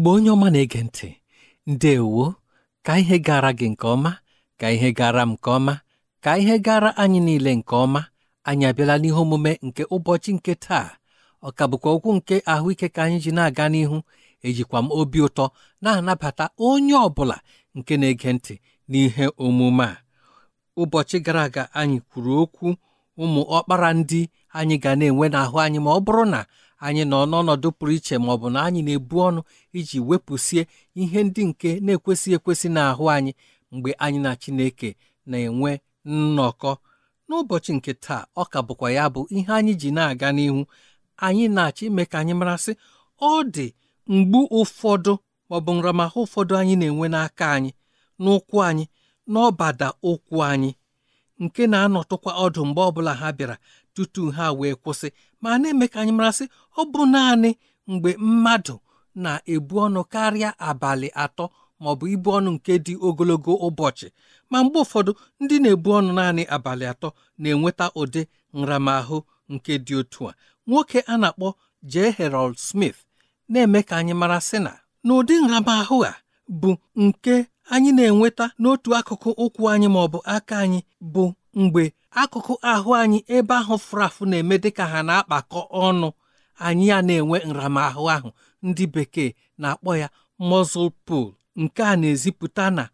igbo onye ọma na-ege ntị ndeewo ka ihe gara gị nke ọma ka ihe gara m nke ọma ka ihe gara anyị niile nke ọma anyị abịala n'ihe omume nke ụbọchị nke taa ọ ka bụkwa okwu nke ahụike ka anyị ji na-aga n'ihu ejikwa m obi ụtọ na-anabata onye ọ bụla nke na-ege ntị n'ihe omume a ụbọchị gara aga anyị kwuru okwu ụmụ ọkpara ndị anyị ga na-enwe n'ahụ anyị ma ọ bụrụ na anyị nọ n'ọnọdụ pụrụ iche ma ọ bụ na anyị na-ebu ọnụ iji wepụsie ihe ndị nke na-ekwesịghị ekwesị n'ahụ anyị mgbe anyị na Chineke na-enwe nnọkọ n'ụbọchị nke taa ọ ka bụkwa ya bụ ihe anyị ji na-aga n'ihu anyị na-achọ ime ka anyị marasị ọ dị mgbu ụfọdụ maọbụ nramahụ ụfọdụ anyị na-enwe n'aka anyị n'ụkwụ anyị n'ọbada ụkwụ anyị nke na-anọtụkwa ọdụ mgbe ọbụla ha bịara tutu ha wee kwụsị ma na-eme ka anyị marasị ọ bụ naanị mgbe mmadụ na-ebu ọnụ karịa abalị atọ maọbụ ibu ọnụ nke dị ogologo ụbọchị ma mgbe ụfọdụ ndị na-ebu ọnụ naanị abalị atọ na-enweta ụdị nramahụ nke dị otu a nwoke a na-akpọ J. Harold Smith na-eme ka anyị mara sị na n'ụdị nramahụ a bụ nke anyị na-enweta n'otu akụkụ ụkwụ anyị maọbụ aka anyị bụ mgbe akụkụ ahụ anyị ebe ahụ fụrafụ na-eme dịka ha na-akpakọ ọnụ anyị ya na-enwe nramahụ ahụ ndị bekee na-akpọ ya muscle pool nke a na-ezipụta na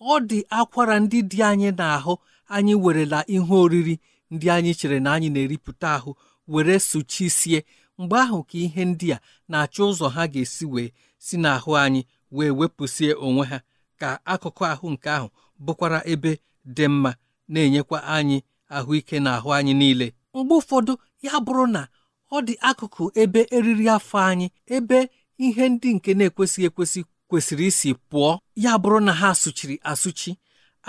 ọ dị akwara ndị dị anyị n'ahụ anyị werela ihe oriri ndị anyị chere na anyị na-eripụta ahụ were sụchisie mgbe ahụ ka ihe ndị a na-achọ ụzọ ha ga-esi wee si n'ahụ anyị wee wepụsie onwe ha ka akụkụ ahụ nke ahụ bụkwara ebe dị mma na-enyekwa anyị ahụike na ahụ anyị niile mgbe ụfọdụ ya bụrụ na ọ dị akụkụ ebe eriri afọ anyị ebe ihe ndị nke na-ekwesịghị ekwesị kwesịrị isi pụọ ya bụrụ na ha sụchiri asụchi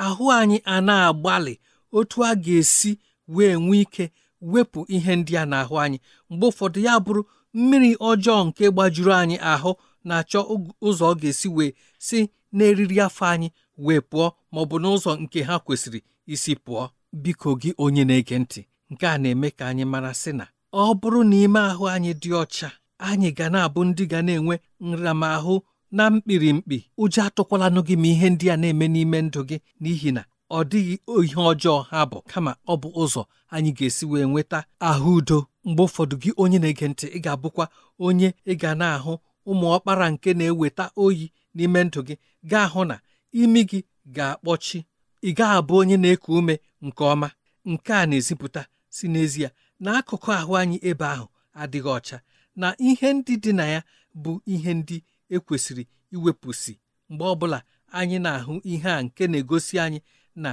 ahụ anyị a na-agbalị otu a ga-esi wee nwee ike wepụ ihe ndị a n'ahụ anyị mgbe ụfọdụ ya bụrụ mmiri ọjọọ nke gbajuru anyị ahụ na-achọ ụzọ ọ ga-esi wee si n'eriri afọ anyị wee pụọ ma ọ bụ n'ụzọ nke ha kwesịrị isi pụọ biko gị onye na-ege ntị nke a na-eme ka anyị mara sị na ọ bụrụ na ime ahụ anyị dị ọcha anyị ga na-abụ ndị ga na-enwe nramahụ na mkpirimkpi ụjọ atụkwalanụ gị ma ihe ndị a na-eme n'ime ndụ gị n'ihi na ọ dịghị ihe ọjọọ ha bụ kama ọ bụ ụzọ anyị ga-esi wee nweta ahụ udo mgbe ụfọdụ gị onye na-ege ntị ị ga-abụkwa onye ị ga na-ahụ ụmụ ọkpara nke na-eweta oyi n'ime ndụ gị gaa hụ na imi gị ga-akpọchi ị gaghị abụ onye na-eku ume nke ọma nke a na-ezipụta si n'ezie na akụkụ ahụ anyị ebe ahụ adịghị ọcha na ihe ndị dị na ya bụ ihe ndị ekwesịrị iwepụsị mgbe ọbụla anyị na-ahụ ihe a nke na-egosi anyị na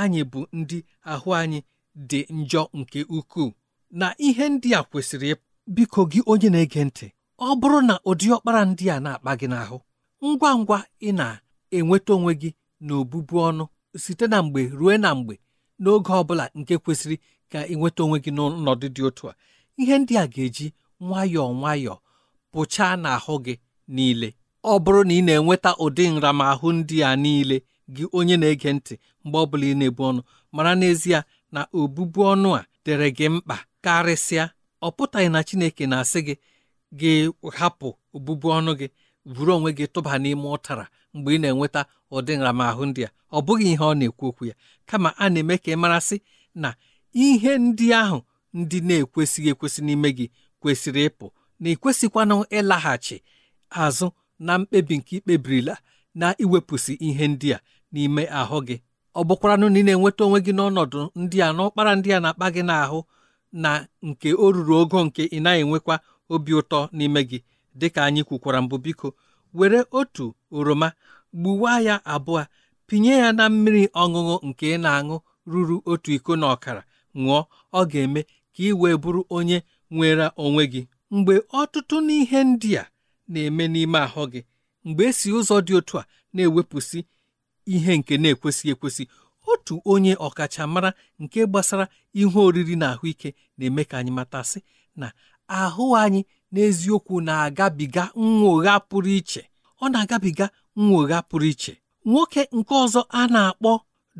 anyị bụ ndị ahụ anyị dị njọ nke ukwuu na ihe ndị a kwesịrị biko gị onye na-ege ntị ọ bụrụ na ụdị ọkpara ndị a na-akpa gị n'ahụ ngwa ngwa ị na-enweta onwe gị na obụbu ọnụ site na mgbe ruo na mgbe n'oge ọ bụla nke kwesịrị ka ị nweta onwe gị n'ọnọdụ dị otu a ihe ndị a ga-eji nwayọọ nwayọọ pụchaa n'ahụ gị niile ọ bụrụ na ị na-enweta ụdị nramahụ ndị a niile gị onye na-ege ntị mgbe ọ bụla ị na-ebu ọnụ mara n'ezie na obụbu ọnụ a dere gị mkpa karịsịa ọ pụtaghị na Chineke na-asị gị gị hapụ obụbu ọnụ gị buru onwe gị tụba n'ime ụtara mgbe ị na-enweta ụdị nramahụ ndị a ọ bụghị ihe ọ na-ekwu okwu ya kama a na-eme ka ị marasị na ihe ndị ahụ ndị na-ekwesịghị ekwesị n'ime gị kwesịrị ịpụ na ịkwesịkwanụ ịlaghachi azụ na mkpebi nke ikpebirila na iwepụsị ihe ndị a n'ime ahụ gị ọ bụkwaranụ na ị na-enweta onwe gị n'ọnọdụ ndị a n'ụkpara ndị a na-akpa gị n'ahụ na nke o ruru ogo nke ị naghị enwekwa obi ụtọ n'ime gị dịka anyị kwukwara mbụ biko were otu oroma gbuwa ya abụọ pinye ya na mmiri ọṅụṅụ nke ị na-aṅụ ruru otu iko na ọkara ṅụọ ọ ga-eme ka ị wee bụrụ onye nwere onwe gị mgbe ọtụtụ n'ihe ndị a na-eme n'ime ahụ gị mgbe esi ụzọ dị otu a na-ewepụsị ihe nke na-ekwesị ekwesị otu onye ọkachamara nke gbasara ihe oriri na ahụike na-eme ka anyị matasị na ahụ anyị n'eziokwu na-agabiga nwụgha pụrụ iche ọ na-agabiga nwogha pụrụ iche nwoke nke ọzọ a na-akpọ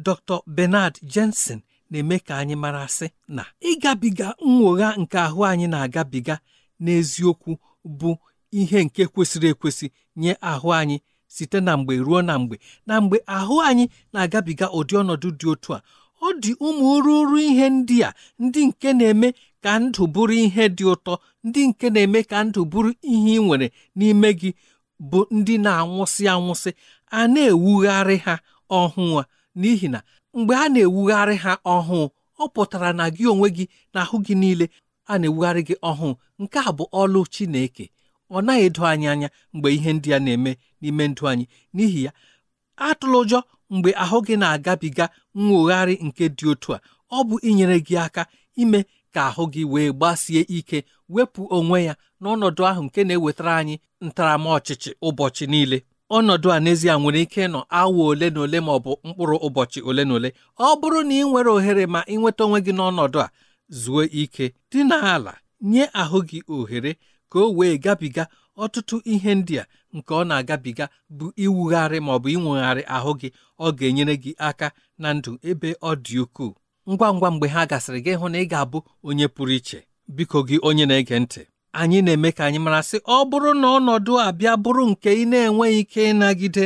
Dr. Bernard Jensen na-eme ka anyị marasị na ịgabiga nwụgha nke ahụ anyị na-agabiga n'eziokwu bụ ihe nke kwesịrị ekwesị nye ahụ anyị site na mgbe ruo na mgbe na mgbe ahụ anyị na-agabiga ụdị ọnọdụ dị otu a ọ dị ụmụ ruru ihe ndị ndị nke na-eme ka ndụ bụrụ ihe dị ụtọ ndị nke na-eme ka ndụ bụrụ ihe ị nwere n'ime gị bụ ndị na-anwụsị anwụsị a na-ewugharị ha ọhụụ a n'ihi na mgbe a na-ewugharị ha ọhụụ ọ pụtara na gị onwe gị na ahụ gị niile a na-ewugharị gị ọhụụ nke a bụ ọlụ Chineke ọ naghị edo anyị anya mgbe ihe ndị a na-eme n'ime ndụ anyị n'ihi ya atụla ụjọ mgbe ahụ gị na-agabiga nwogharị nke dị otu a ọ bụ inyere gị aka ime ka ahụ gị wee gbasie ike wepụ onwe ya n'ọnọdụ ahụ nke na-ewetara anyị ntaramọchịchị ụbọchị niile ọnọdụ a n'ezie nwere ike ịnọ awa ole na ole ma ọ bụ mkpụrụ ụbọchị ole na ole ọ bụrụ na ị nwere ohere ma ị nweta onwe gị n'ọnọdụ a zuo ike dị n'ala nye ahụ gị ohere ka o wee gabiga ọtụtụ ihe ndị a nke ọ na-agabiga bụ iwugharị ma ọ bụ inwegharị ahụ gị ọ ga-enyere gị aka na ndụ ebe ọ dị ukwuu ngwa ngwa mgbe ha gasịrị gị hụ na ị ga-abụ onye pụrụ iche biko gị onye na-ege ntị anyị na-eme ka anyị mara sị ọ bụrụ na ọnọdụ abịa bụrụ nke ị na-enweghị ike ịnagide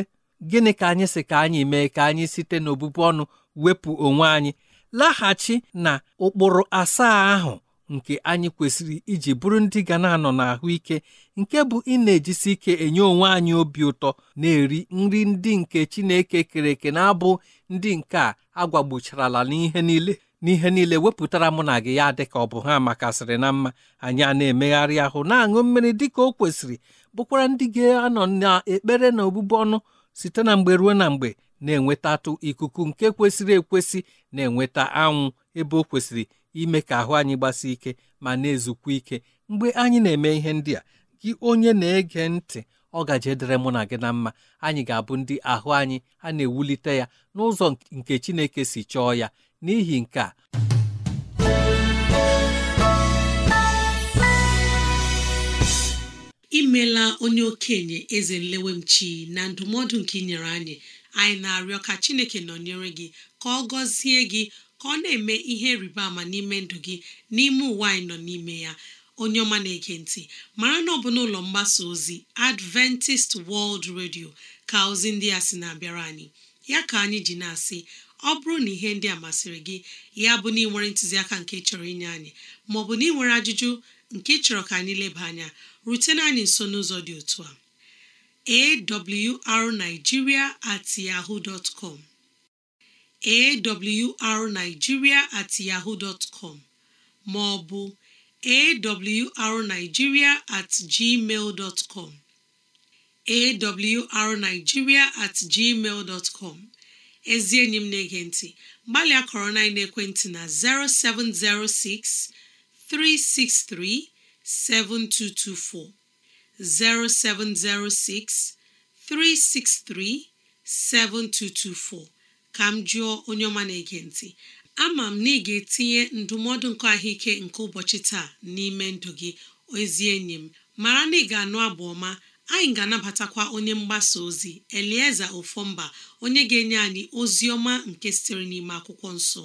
gịnị ka anyị si ka anyị mee ka anyị site n'obụbụ ọnụ wepụ onwe anyị laghachi na ụkpụrụ asaa ahụ nke anyị kwesịrị iji bụrụ ndị ga na-anọ n'ahụike nke bụ ị na-ejisi ike enye onwe anyị obi ụtọ na-eri nri ndị nke Chineke kere eke na-abụ ndị nke a agwagbucharala n'ihe niile n'ihe niile wepụtara mụ na gị ya dị ka ọ bụ ha makasịrị na mma anyị a na-emegharị ahụ na-aṅụ mmiri dị ka o kwesịrị bụkwara ndị ga-anọ n'ekpere na obubu ọnụ site na mgbe ruo na mgbe na-enwetatụ ikuku nke kwesịrị ekwesị na-enweta anwụ ebe o kwesịrị ime ka ahụ anyị gbasie ike ma na-ezukwa ike mgbe anyị na-eme ihe ndị a gị onye na-ege ntị ọ gaje dịrị mụ na gị na mma anyị ga-abụ ndị ahụ anyị a na-ewulite ya n'ụzọ nke Chineke si chọọ ya n'ihi nke a imela onye okenye eze nlewemchi na ndụmọdụ nke ị nyere anyị anyị na-arịọ ka Chineke nọnyere gị ka ọ gọzie gị ka ọ na-eme ihe rịba ama n'ime ndụ gị n'ime ụwa anyị nọ n'ime ya onye ọma na-ege ntị mara na ọ bụ n'ụlọ mgbasa ozi Adventist World Radio ka ozi ndị a sị na-abịara anyị ya ka anyị ji na-asị ọ bụrụ na ihe ndị a masịrị gị ya bụ na ịnwere ntụziaka nke chọrọ inye anyị maọbụ na ịnwere ajụjụ nke chọrọ ka anyị leba anya rutena anyị nso n'ụzọ dị otu a awrnigeria at yahoo dot com awrnigeria at yahoo dot com ma ọ bụ awrnigeria at gmail com awrnigeria at gmail com ezi enyi m na-ege ntị gbalịa kọrọ na ekwentị na 0706 363 7224 0706 363 7224 ka m jụọ onye ọma na-ege ntị ama m na ị ga-etinye ndụmọdụ nke ahụike nke ụbọchị taa n'ime ndụ gị ezi enyi m mara na ị ga-anụ abụ ọma anyị ga-anabatakwa onye mgbasa ozi elieza ofomba onye ga-enye anyị ozi ọma nke sitere n'ime akwụkwọ nsọ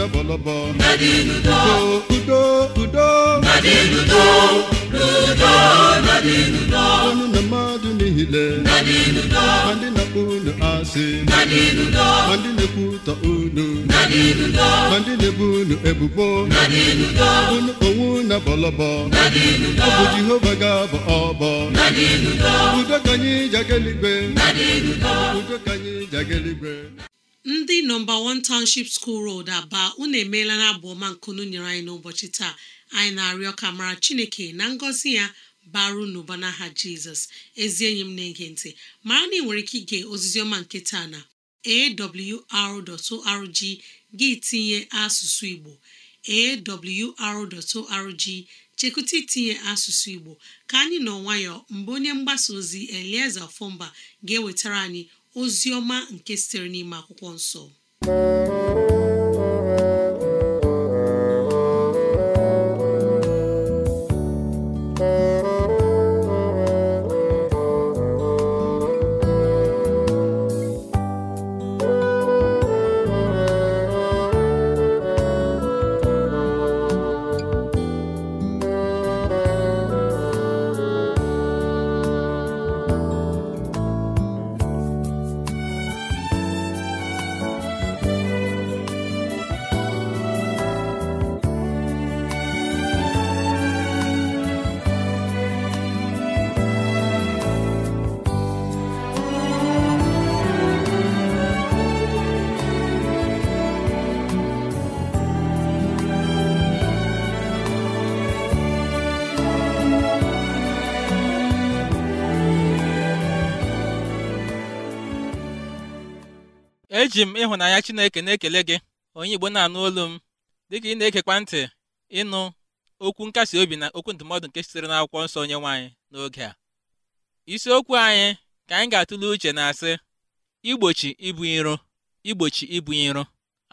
lọbọlọbọ. Nadiludo. Udo udo. Nadiludo. Ludo nadiludo. Ọnụ na mmadụ niile. Ma ndị na-akpọ unu asị. Ma ndị na-ekwutọ unu. Ma ndị na-ebu unu ebubo. Unu onwe na bọlọbọ. Jehova ga bụ ọbọ. Udo ka anyị Udo ka anyị ndị nọmba 1 Township School rod Aba unu emeela na abụ ọma nkunu nyere anyị n'ụbọchị taa anyị na-arịọ ka mara Chineke na ngọzi ya baru n'ụba n'aha Jizọs ezi enyi m na-ege ntị mara na ị nwere ike ige oziziọma ọma nke taa na awr.org gị tinye asụsụ Igbo awr.org chekwụta itinye asụsụ Igbo ka anyị nọ nwayọọ mgbe onye mgbasa ozi elieze ofumba ga-ewetara anyị ozi ọma nke sitere n'ime akwụkwọ nsọ eji m ịhụnanya Chineke na-ekele gị onye Igbo na-anụ olu m dịka ị na-ekekwa ntị ịnụ okwu nkasi obi na okwu ndụmọdụ nke sitere n'akwụkwọ nsọ onye nwaanyị n'oge a isiokwu anyị ka anyị ga-atụle uche na-asị igbochi ibu iro igbochi ibu iro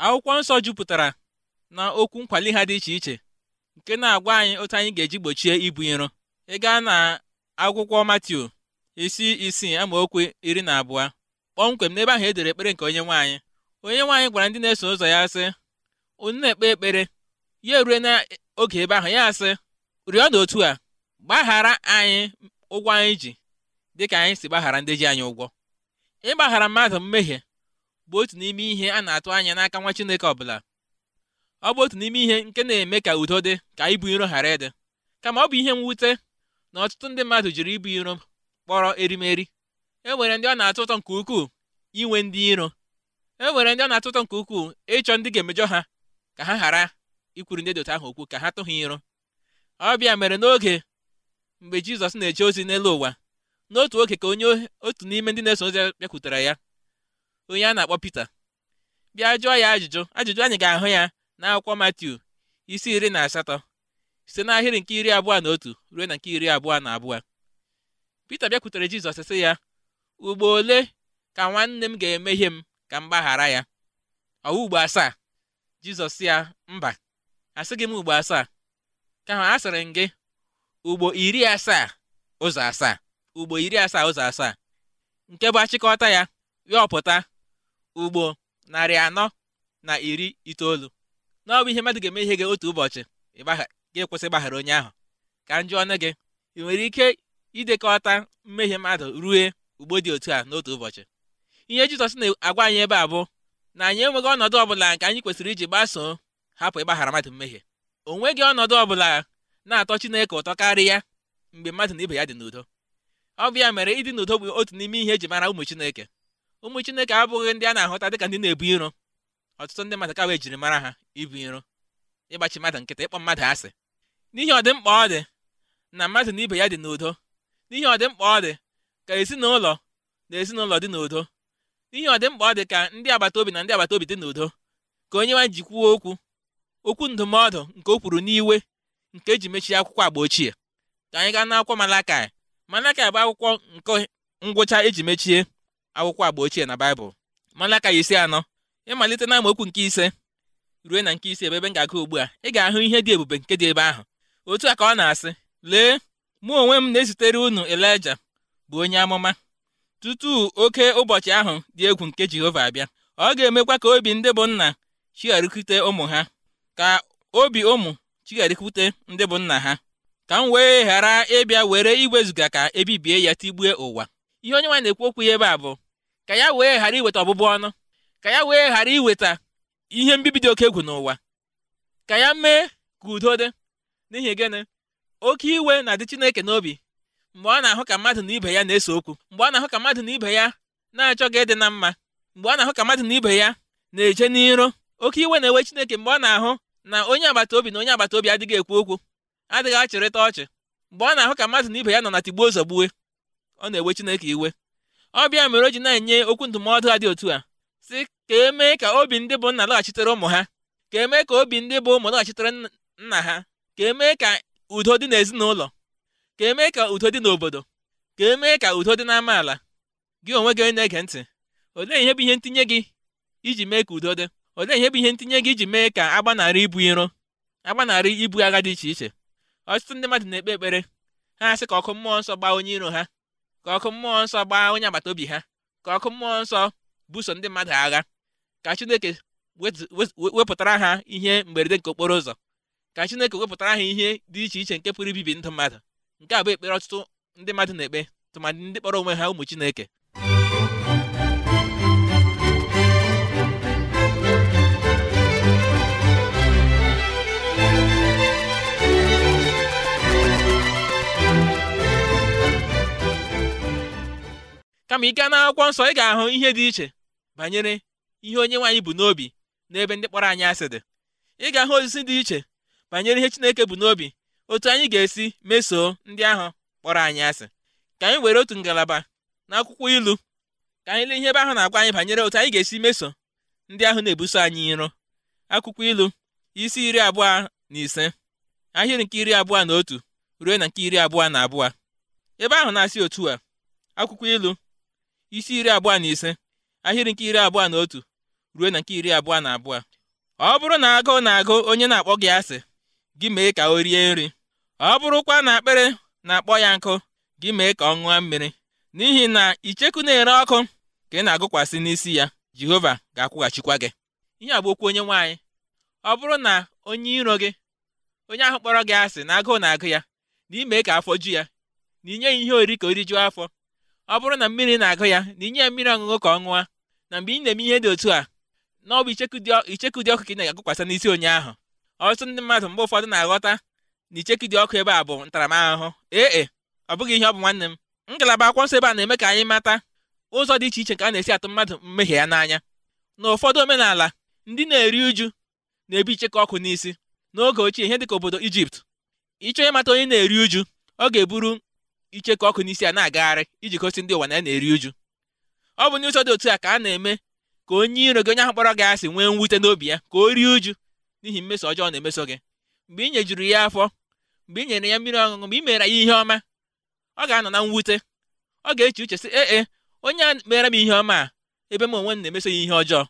akwụkwọ nsọ jupụtara na okwu nkwali ha dị iche iche nke na-agwa anyị otu anyị ga-eji gbochie ibu iro ị gaa na akwụkwọ Matiu isi isii amaokwu iri na abụọ kpọmkwem n'ebe ahụ edere ekpere nke onye nwaanyị onye nwaanyị gwara ndị na-eso ụzọ ya sị unu na-ekpe ekpere ya erue n'oge ebe ahụ ya sị rịọ na otu a gbaghara anyị ụgwọ anyị ji dị ka anyị si gbaghara ndị ji anyị ụgwọ ịgbaghara mmadụ mmehie bụ otu n'ime ihe a na-atụ anya n'aka nwa Chineke ọbụla ọ bụ otu n'ime ihe nke na-eme ka udo dị ka ibu iro ghara ịdị kama ọ bụ ihe mwute na ọtụtụ ndị mmadụ jiri ibu iro kpọrọ erimeri enwere ndị ọ na atụ ụtọ nke ukwuu inwe ndị iro e nwere ndị ọ na atụ ụtọ nke ukwuu ịchọ ndị ga-emejọ ha ka ha ghara ikwuru ndị dota ahụ okwu ka ha tụ ha iro ọbịa mere n'oge mgbe jizọs na-eje ozi n'elu ụwa n'otu oge ka onye otu n'ime ndị na-eso ozi bịakwutere ya onye a na-akpọ pita bịa jụọ ya ajụjụ ajụjụ anyị ga-ahụ ya n'akwụkwọ matiu isi iri na asatọ site n'ahịrị nke iri abụọ na otu ruo na nke iri abụọ na abụọ pita bịakwutere jizọs sị ya ugbo ole ka nwanne m ga-emehie m ka m gbaghara ya ọwụ ugbo asaa jizọs ya mba gị m ugbo asaa ka a sịrị m gị ugbo iri asaa ụzọ asaa ugbo iri asaa ụzọ asaa nke bụ achịkọta ya yọpụta ugbo narị anọ na iri itoolu na ọ bụ ihe mmadụ ga-eme ihe gị otu ụbọchị ga-ekwesị gbaghara onye ahụ ka m jụọ ọnụ gị ị nwere ike idekọta mmehie mmadụ rue ugbo dị otu a n'otu ụbọchị ihe jizọs na-agwa anyị ebe a bụ na anyị enweghị ọnọdụ ọbụla nke anyị kwesịrị iji gbasoo hapụ ịgbaghara mmadụ mmehie o nweghị ọnọdụ ọbụla na-atọ chineke ụtọ karịa mgbe mmadụ na ibe ya dị n'udo ọ bụ ya mere ịdị n'udo bụ otu n'ime ihe eji mara ụmụ chineke ụmụ chineke abụghị ndị a na-ahụta dịka ndị na-ebu iro ọtụtụ ndị mmadụ kawa ejiri mara ha ibu iro ịgbachi mmadụ nkịta ịkpọ mmadụ asị n'ihe ọdịmkpa ọ dị na mmadụ na ibe ya dị n'udo n'ihe ọdịmkpa ọ dị ka ezinụlọ na ezinụlọ dị n'udo ihe ọ dị mkpa ọ dị ka ndị agbata obi na ndị agbata obi dị n'udo ka onye nwa ji kwuo okwu okwu ndụmọdụ nke o kwuru n'iwe nke eji mechie akwụkwọ agba ochie ka anyị gaa n'akwụkwọ Malakai Malakai bụ akwụkwọ nke ngwụcha eji mechie akwụkwọ agba ochie na Baịbụl Malakai isi anọ ịmalite na okwu nke ise ruo na nke ise ebe ebe m ga-aga ugbu a ị ga-ahụ ihe dị ebube nke dị ebe ahụ otu a ka ọ na-asị lee mụ onwe m na-ezitere unu Elija bụ onye amụma tutu oke ụbọchị ahụ dị egwu nke Jehova abịa ọ ga-emekwa ka obi ndị bụ nna chigharịkwute ụmụ ha ka obi ụmụ chigharịkwute ndị bụ nna ha ka m wee ghara ịbịa were iwezuga ka ebibie ya tigbue ụwa ihe onye nwa na-ekwu okwu ya ebe a bụ ka ya wee ghara iweta ọbụbụ ọnụ ka ya wee ghara iweta ihe mbibi dị oke egwu n'ụwa ka ya mee ka udo dị n'ihi gịnị oke iwe na-adị Chineke n'obi mgbe ọ na-ahụ ka mmadụ na ibe ya na-ese okwu mgbe ọ na-ahụ ka mmadụ na ibe ya na gị ịdị na mma mgbe ọ na-ahụ ka mmadụ na ibe ya na-eje n'iro oke iwe na-ewe Chineke mgbe ọ na-ahụ na onye agbata obi na onye agbata obi adịghị ekwu okwu adịghị achịrịta ọchị mgbe ọ na-ahụ ka mmadụ na ibe ya nọ na tigbuo zọgbuwe ọ na-ewe Chineke iwe ọ bịa mere o ji na-enye okwu ndụmọdụ a dị otu a si ka emee ka obi ndị bụ nna lọghachitere ụmụ ha ka emee ka obi ndị bụ ụmụ lọghachitere nna ha ka emee ka udo dị n'ezinụlọ ka emee ka udo dị n'obodo ka emee ka udo dị n'amaala gị onwe gị onye na-ege ntị olee ihe bụ ihe ntinye gị iji mee ka udo dị olee ihe bụ ihe ntinye gị iji mee ka agbanarị ibu iro agbanarị ibu agha dị iche iche ọtụtụ ndị mmadụ na-ekpe ekpere ha asị ka ọkụ mmụọ nsọ gbaa onye iro ha ka ọkụ mmụọ nsọ gbaa onye agbata obi ha ka ọkụ mmụọ nsọ buso ndị mmadụ agha ka Chineke wepụtara ha ihe mberede nke okporo ụzọ ka Chineke wepụtara ha ihe dị iche iche nke pụrụ ibibi ndụ mmadụ nke a bụ ekpere ọtụtụ ndị mmadụ na-ekpe tụmadị ndị kpọrọ onwe ha ụmụ Chineke kama ike na-akwụkwọ nsọ ị ga-ahụ ihe dị iche banyere ihe onye nwaanyị bụ n'obi n'ebe ndị kpọrọ anyị asị dị ị ga-ahụ osisi dị iche banyere ihe Chineke bụ n'obi otu anyị ga-esi mesoo ndị ahụ kpọrọ anyị asị ka anyị were otu ngalaba n'akwụkwọ ilu ka anyị lee ihe ebe ahụ na-agwa anyị banyere otu anyị ga-esi meso ndị ahụ na-ebuso anyị iro akwụkwọ ilu isi iri abụọ na ise ahịrị nke iri abụọ na otu ruo na nke iri abụọ na abụọ ebe ahụ na-asị otu a akwụkwọ ilu isi iri abụọ na ise ahịrị nke iri abụọ na otu ruo na nke iri abụọ na abụọ ọ bụrụ na agụụ na-agụ onye na-akpọ gị asị gị mee ka o rie nri ọ bụrụkwa na akpịrị na-akpọ ya nkụ gị mee ka ọ ṅụọ mmiri n'ihi na icheku na-ere ọkụ ka ị na-agụkwasị n'isi ya Jehova ga-akwụghachikwa gị ihe a bụ okwu onye nwaanyị ọ bụrụ na onye iro gị onye ahụ kpọrọ gị asị na agụụ na-agụ ya na imee ka afọ ju ya na inye ya ihe oriri ka ori rijuo afọ ọ bụrụ na mmiri na-agụ ya na inye ya mmiri ọṅụṅụ ka ọ ṅụa na mgbe ị na-eme ihe dị otu a na icheku dị ọkụ ka ị na-agụkwasị n'isi onye ahụ ọtụtụ ndị mmadụ mgbe ụfọdụ na-aghọta na icheki dị ọkụ ebe a bụ ntaramahụhụ ee e, ọ bụghị ihe ọ bụ nwanne m ngalaba akwụkwọ nsọ ebe a na-eme ka anyị mata ụzọ dị iche iche nke a na-esi atụ mmadụ mmehie ya n'anya na ụfọdụ omenala ndị na-eri uju na ebi icheke ọkụ n'isi n'oge ochie ihe dịka obodo ijipt ịchọ ịmata onye na-eri uju ọ ga-eburu icheke ọkụ n'isi a na-agagharị iji gosi ndị ụwa na ya na-eri uju ọ bụ n'ụzọ dị otu a ka a na-eme ka onye iro gị onye ahụ kpọrọ gị asị nwee mwute n'obi ya ka o rie uju n'ihi mmeso ọjọọ na-emeso gị mgbe i nyejuru ya afọ mgbe i nyere ya mmiri ọṅụṅụ mgbe i mere ya ihe ọma ọ ga-anọ na mwute ọ ga-eche uche sị ee e, onye a mere m ihe ọma a ebe m onwe m na-emeso ya ihe ọjọọ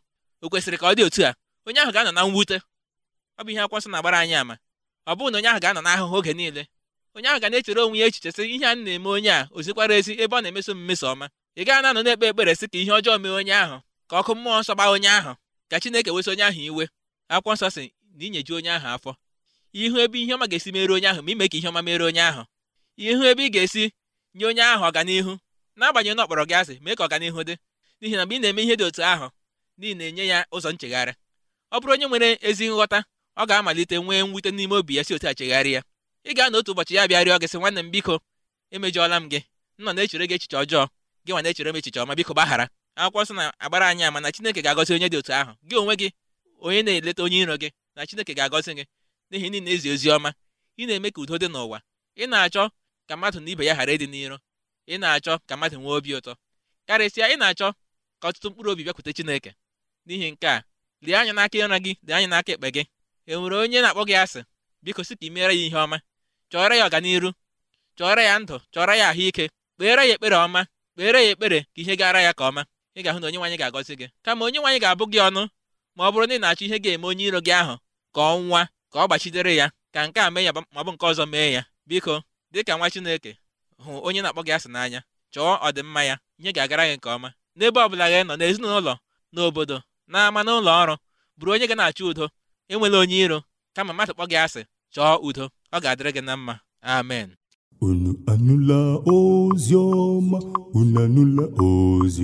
o kwesịrị ka ọ dị otu a onye ahụ ga-anọ na mwute ọ bụ ihe akwụkwọ nsọ na-agbara anyị ama ọ bụghị na onye ahụ ga-anọ n'ahụhụ oge niile onye ahụ ga na-echere onwe ya echiche sị ihe a na-eme onye a ozikwara ezi ebe ọ na-emeso m mmeso ọma ị gaa na-anọ na-ekpe ekpere sị ka ihe ọjọọ mee onye ahụ ka ọkụ mmụọ nsọ gbaa onye ahụ ka Chineke wesị onye ahụ iwe akwụkwọ nsọ sị na inyeju onye ahụ afọ ihu ebe ihe ọma ga-esi mere onye ahụ ma ime ka ihe ọma mere onye ahụ ihu ebe ị ga-esi nye onye ahụ ọganihu n'agbanyeghị na ọ kpọrọ gị asị mee ka ọganihu dị n'ihi na mgbe ị na-eme ihe dị otu ahụ n'ihi na-enye ya ụzọ nchegharị ọ bụrụ onye nwere ezi nghọta ọ ga-amalite nwee mwute n'ime obi ya si otu a chegharị ya ị ga-anọ otu ụbọchị ya bịarịọ gị sị nwanne m biko emejọọla m gị nọ na-echere gị echiche ọjọọ gị nwa na-echere m echiche ọma biko gbaghara akwụkwọ nsọ na-agbara anyị ama na Chineke ga-agọzi onye dị otu ahụ gị onwe gị onye na-eleta onye iro gị na Chineke ga-agọzi gị n'ihi ndị na-ezi ozi ọma ị na-eme ka udo dị n'ụwa ị na-achọ ka mmadụ na ibe ya ghara ịdị n'iro ị na-achọ ka mmadụ nwee obi ụtọ karịsịa ị na-achọ ka ọtụtụ mkpụrụ obi bịakwute Chineke n'ihi nke a lie anya n'aka ịra gị dị anya n'aka ekpe gị e nwere onye na-akpọ gị asị biko si ka ị meere ya ihe ọma chọọrọ ya ọganiru chọọrọ ya ndụ chọọrọ ya ahụike kpeere ya ekpere ọma kpeere ya ekpere ka ihe gara ya ka ọma ị ga-ahụ na onye nwaanyị ga-agọzi gị kama onye nwaanyị ga-abụ gị ọnụ ma ọ bụrụ na ị na-achọ ihe ga-eme onye iro gị ahụ ka ọ ka ọ gbachitere ya ka nke a mee ya ma ọ bụ nke ọzọ mee ya biko dịka nwa Chineke hụ onye na-akpọ gị asị n'anya chọọ ọdịmma ya nye ga-agara gị nke ọma n'ebe ọ bụla gị nọ n'ezinụlọ n'obodo n'ama n'ụlọ ọrụ bụrụ onye ga na-achọ udo enwela onye iro kama mmadụ kpọ gị asị chọọ udo ọ ga-adịrị gị na mma amen Unu anụla ozi ọma, unu anụla ozi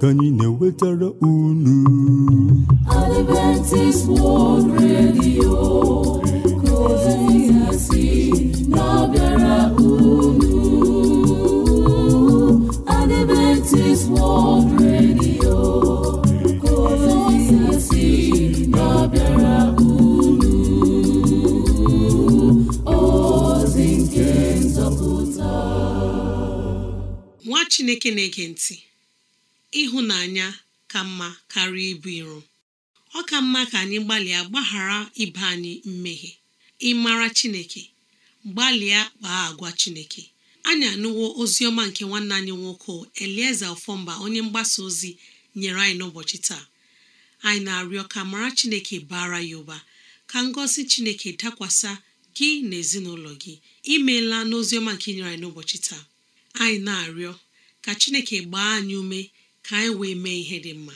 ka anyị na-ewetara unu. unu. Adventist World Radio chineke na-ege ntị ịhụnanya ka mma karịa ibu iro ọ ka mma ka anyị gbalịa gbaghara ibe anyị mmehie ịmara chineke gbalịa kpaa agwa chineke anyị anụwo oziọma nke nwanne anyị nwoke elieze ọfọmba onye mgbasa ozi nyere anyị n'ụbọchị taa anyị na-arịọ ka mara chineke bara ya ụba ka ngosi chineke dakwasa gị na ezinụlọ gị imeela n'oziọma nke nyere anyị n'ụbọchị taa anyị na-arịọ ka chineke gbaa anyị ume ka anyị wee mee ihe dị mma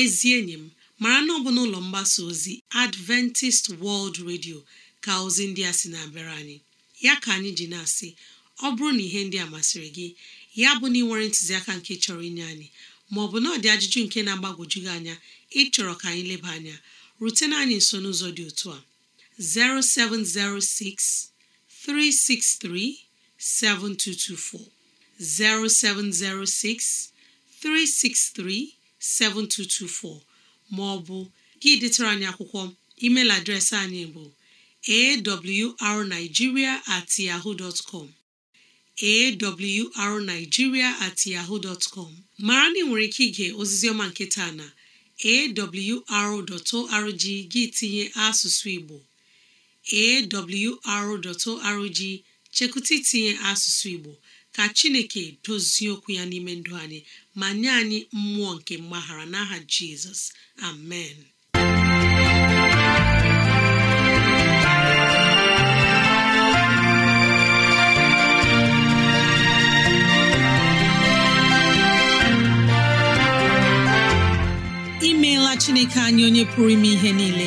ezi enyi m mara na ọ bụ n'ụlọ mgbasa ozi adventist world radio ka ozi ndị a sị na-abịara anyị ya ka anyị ji na-asị ọ bụrụ na ihe ndị a masịrị gị ya bụ na ị nwere ntụziaka nke chọrọ inye anyị maọbụ na ọ dị ajụjụ nke na-agbagwoju gị anya ịchọrọ ka anyị leba anya rutena anyị nso n'ụzọ dị otu a 0706 363 7224 0706 363 7224 ma gị detara anyị akwụkwọ email adreesị anyị bụ awrnigeria at yahoo com mara na ị nwere ike ige ozizi ọma nke taa na awr.org gị tinye asụsụ Igbo awr.org chekụta itinye asụsụ Igbo ka chineke dozie okwu ya n'ime ndụ anyị ma nye anyị mmụọ nke mgbaghara n'aha jizọs amen imeela chineke anyị onye pụrụ ime ihe niile